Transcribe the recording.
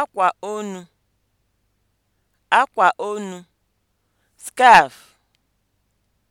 akwa onu akwa onu Skaf.